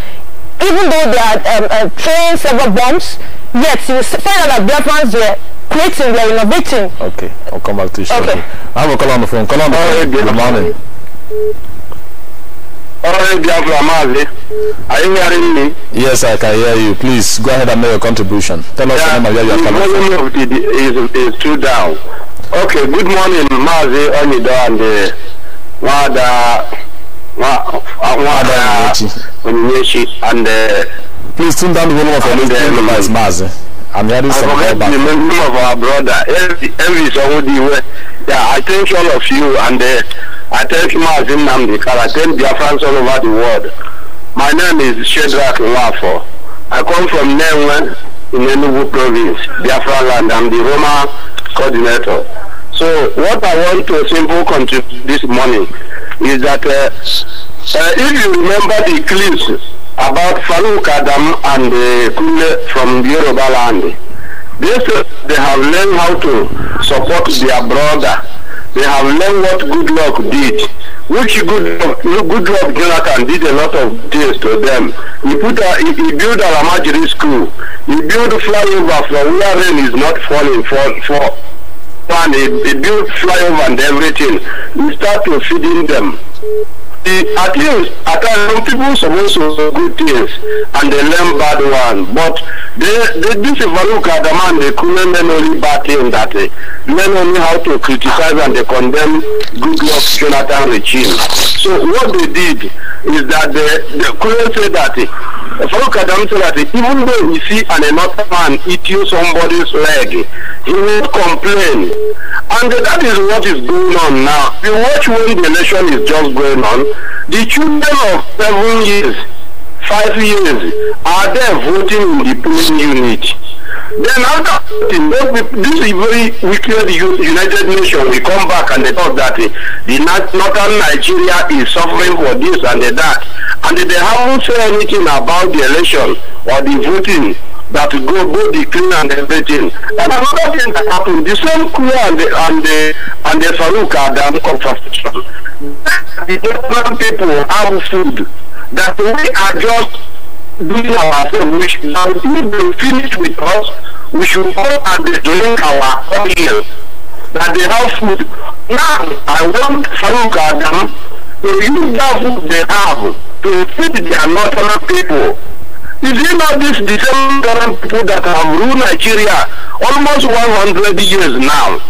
Even though they are um, uh, several bombs, yet you find out that Biafrans were creating, were innovating. Okay, I'll come back to you shortly. Okay. I have a call on the phone. Call on the phone. Good morning. Alright, Biafra Mazi. Are you hearing me? Yes, I can hear you. Please go ahead and make your contribution. Tell us yeah, the name of where you are coming from. The volume of the, is, is too down. Okay, good morning, Mazi Onido and the uh, Wada, uh, Wada Onyeshi and... Uh, Please tune down the volume of your device, um, Mazi. I'm hearing some feedback. the name of our brother, Elvis Owodiwe. Yeah, I thank all of you and... Uh, I thank Mazin Namdekar. I thank Biafrans all over the world. My name is Shadrach Nwafo. I come from Nenwe in Enugu province, Biafra land. I'm the Roma coordinator. So what I want to simply contribute this morning is that uh, uh, if you remember the clips about Farouk Adam and uh, Kule from Yoruba land, they, they have learned how to support their brother they have learned what good luck did. Which good good luck Jonathan did a lot of things to them. He put a, he, he built Alamajiri school. He built flyover from where rain is not falling for for and he, he built flyover and everything. He started feeding them at least at times some people supposed to good things and they learn bad one but they, they this Ivaluka the man they couldn't learn only bad things that they eh, learn only how to criticize and they condemn good luck Jonathan regime so what they did is that they, they couldn't say that Farouk eh, Adam said that even though we see an another man eating somebody's leg eh, he will complain. And that is what is going on now. You watch when the election is just going on, the children of seven years, five years, are there voting in the polling unit. Then after voting, this is very wicked United Nations will come back and they talk that the northern Nigeria is suffering for this and that. And they haven't said anything about the election or the voting that go go the clean and everything. And another thing that happened, the same crew and the and the and the Farouk are damn um, contraception. The German people have food that we are just doing ourselves, which now if they finish with us, we should go and drink our oil. That they have food. Now I want Farouk Adam to use that food they have to feed their northern people. You see this the people that have ruled Nigeria almost 100 years now.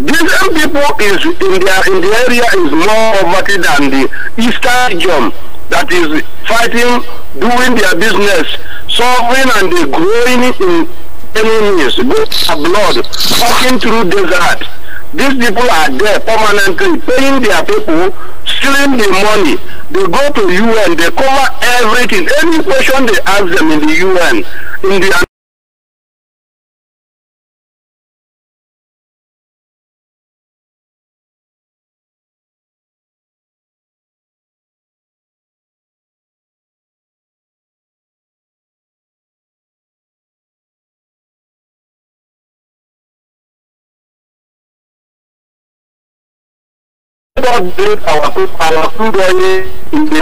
These people is in the in the area is more poverty than the eastern region that is fighting, doing their business, solving and growing in enemies, good blood, walking through desert. These people are there permanently paying their people stealing the money. They go to UN, they cover everything. Any question they ask them in the UN, in the God bless our our food in the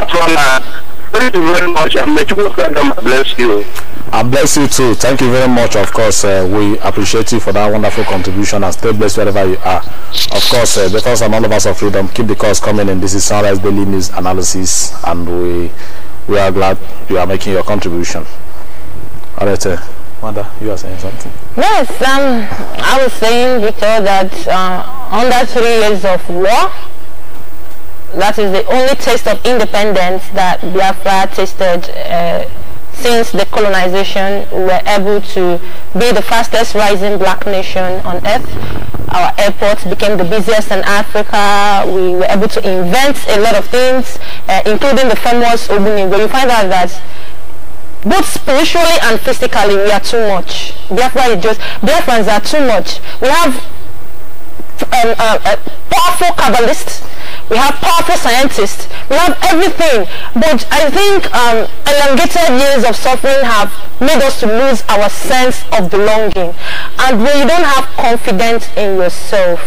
Thank you very much, and may you bless you. I bless you too. Thank you very much. Of course, uh, we appreciate you for that wonderful contribution and stay blessed wherever you are. Of course, uh, the first and all of us of freedom, keep the calls coming in. This is Sunrise Daily News Analysis, and we we are glad you are making your contribution. All right, uh, Manda, you are saying something. Yes, um, I was saying, Victor, that uh, under three years of war, that is the only taste of independence that Biafra tasted uh, since the colonization. We were able to be the fastest rising black nation on earth. Our airports became the busiest in Africa. We were able to invent a lot of things, uh, including the famous But You find out that both spiritually and physically we are too much. Biafra is just, Biafrans are too much. We have um, uh, uh, powerful Kabbalists we have powerful scientists, we have everything. But I think um, elongated years of suffering have made us to lose our sense of belonging. And when you don't have confidence in yourself,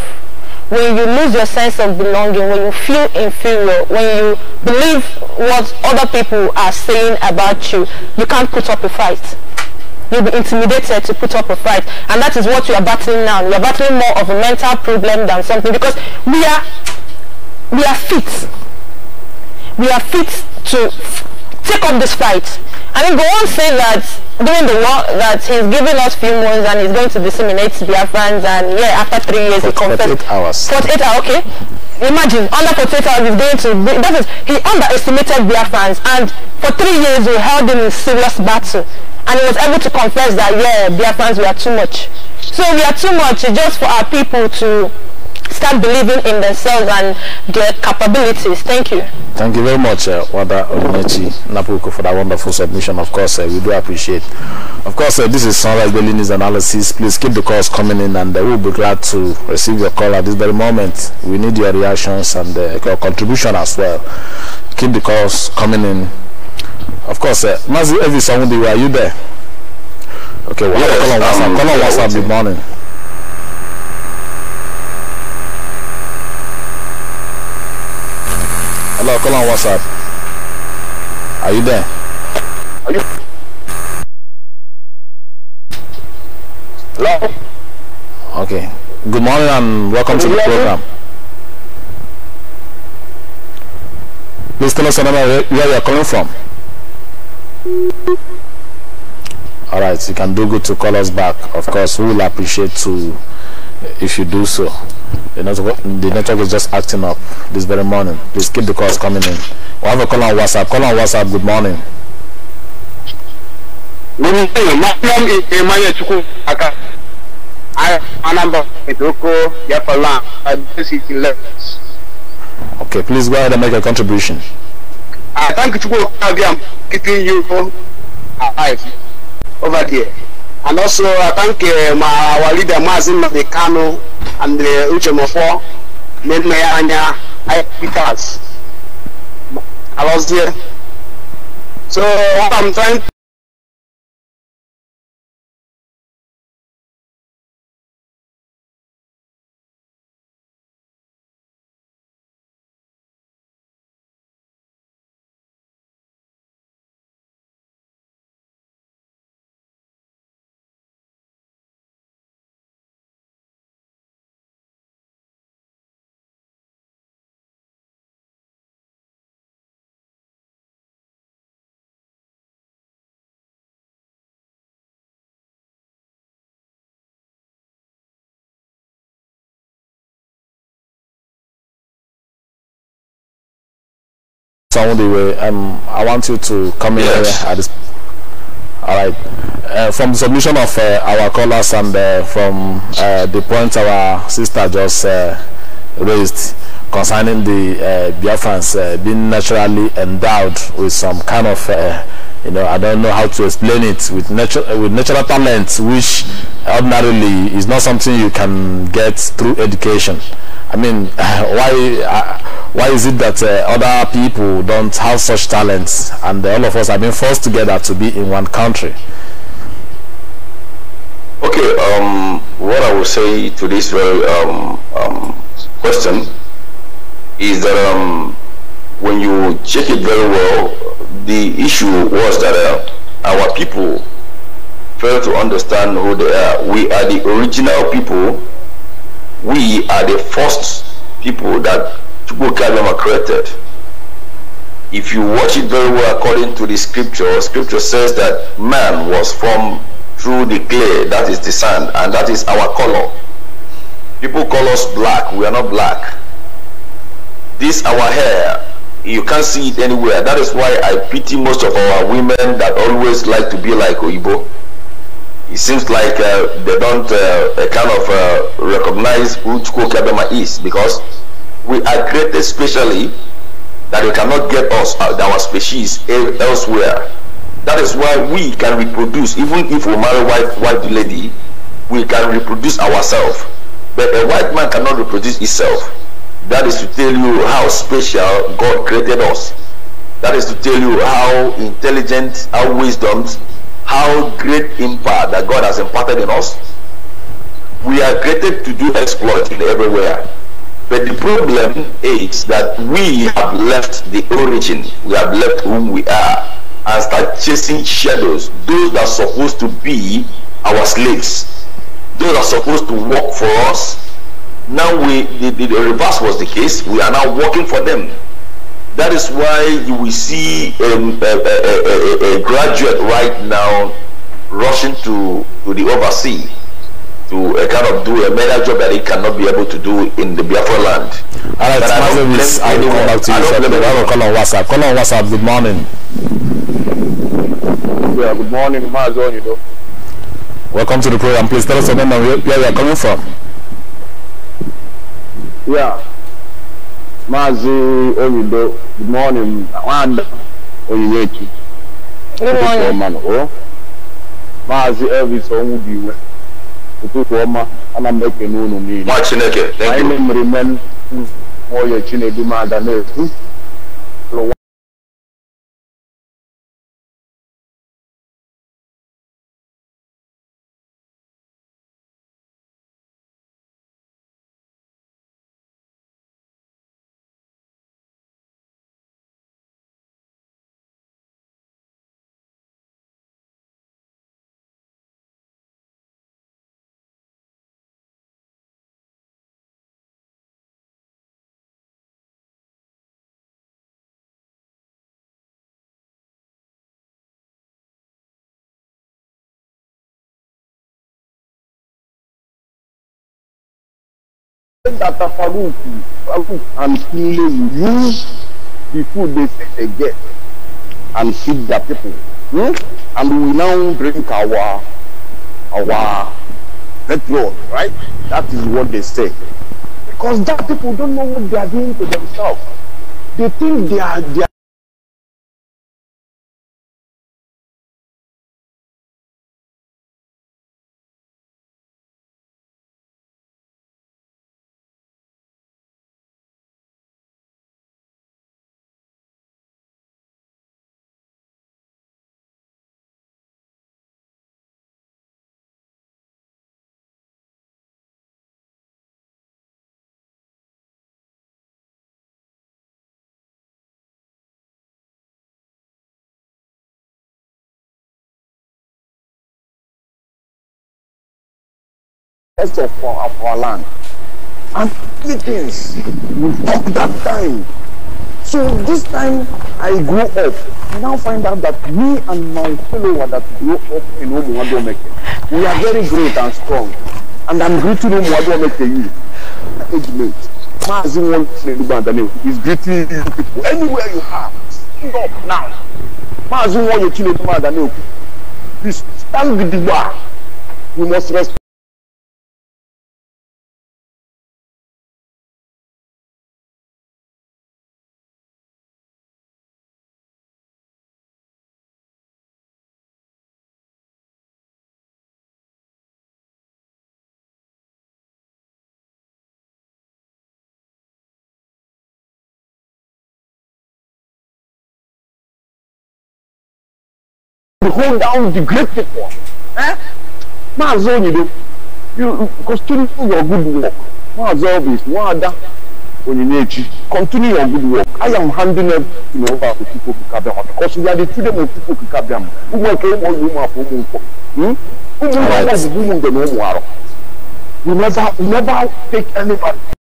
when you lose your sense of belonging, when you feel inferior, when you believe what other people are saying about you, you can't put up a fight you'll be intimidated to put up a fight and that is what you are battling now you're battling more of a mental problem than something because we are we are fit. We are fit to take up this fight. I mean, go on say that during the war that he's giving us few months and he's going to disseminate Biafrans and yeah, after three years he confessed. 48 hours. 48 hours, okay. Imagine, under 48 hours he's going to, that is, he underestimated Biafrans and for three years we held him in serious battle and he was able to confess that yeah, Biafrans we are too much. So we are too much just for our people to start believing in themselves and their capabilities. Thank you. Thank you very much, uh, Wada Omechi Napuku, for that wonderful submission. Of course, uh, we do appreciate. Of course, uh, this is Sunrise Daily News Analysis. Please keep the calls coming in, and uh, we'll be glad to receive your call at this very moment. We need your reactions and uh, your contribution as well. Keep the calls coming in. Of course, uh, Mazi Evisamundi, are you there? Okay, well, yes, call on WhatsApp. Call on WhatsApp. Good morning. Call call on WhatsApp. Are you there? Are you? Hello? Okay. Good morning and welcome Can to the program. You? Please tell us where you are calling from. Alright, you can do good to call us back. Of course, we will appreciate to if you do so. The network, the network is just acting up this very morning. Please keep the calls coming in. we have a call on WhatsApp. Call on WhatsApp. Good morning. Okay, please go ahead and make a contribution. I ah, thank you I am keeping you alive over there. And also, I thank uh, my, our leader, Mazin Mekano, and uh, Uchemofo, Nemeyanya, Peters. I was there. So, what I'm trying um, I want you to come in yes. here at this. All right. Uh, from the submission of uh, our callers and uh, from uh, the point our sister just uh, raised concerning the uh, Biafrans being naturally endowed with some kind of, you know, I don't know how to explain it, with, natu with natural talent, which ordinarily is not something you can get through education. I mean, why? why is it that uh, other people don't have such talents and all of us have been forced together to be in one country? Okay, um, what I would say to this very um, um, question is that um, when you check it very well, the issue was that uh, our people fail to understand who they are. We are the original people. We are the first people that book Adam created. If you watch it very well according to the scripture, scripture says that man was formed through the clay, that is the sand, and that is our color. People call us black, we are not black. This our hair, you can't see it anywhere. That is why I pity most of our women that always like to be like Oibo. It seems like uh, they don't uh, kind of uh, recognize who Chukwu Bema is because we are created specially that we cannot get us uh, our species elsewhere. That is why we can reproduce, even if we marry white white lady, we can reproduce ourselves. But a white man cannot reproduce itself. That is to tell you how special God created us. That is to tell you how intelligent, how wisdom, how great impact that God has imparted in us. We are created to do exploits everywhere. But the problem is that we have left the origin. We have left whom we are and start chasing shadows, those that are supposed to be our slaves, those that are supposed to work for us. Now we the, the, the reverse was the case. We are now working for them. That is why you will see um, a, a, a, a graduate right now rushing to, to the overseas to uh, kind of do a major job that he cannot be able to do in the Biafra land. All right, but I don't I do come back to you. I don't call on WhatsApp. Call on WhatsApp. Good morning. Yeah, good morning, Mazon, you know. Welcome to the program. Please tell us your name and where, you are coming from. Yeah. Mazi Oyido, good morning. And Oyiyechi. Good morning. Oh. Mazi Elvis Onwubiwe ụtụtụ ọma ana m ekene unu niile anyị chinedumada na-ekwu that Farouk, Farouk and Kile will use the food they say they get and feed their people. Hmm? And we now drink our our petrol, right? That is what they say. Because that people don't know what they are doing to themselves. They think they are they are rest of our, of our land. And three things will take that time. So this time I grew up. I now find out that me and my fellow that grew up in Omuwadomeke, we are very great and strong. And I'm greeting Omuwadomeke you. Age mate. Mazi one is greeting people. Anywhere you are, stand up now. Mazi one you kill Please stand with the bar. We must respect. the whole down the great people. Eh? Maazị Onyido, you continue your good work. Maazị Obis, Nwaada Onyinyechi, continue your good work. I am handing up you know, over to people Kikabiama because we are the children of people Kikabiama. Ụmụaka ụmụ ụmụ afọ ụmụ nkwọ. Who nkwọ bụ ụmụ mgbe na ụmụ arọ. We never, we never take anybody.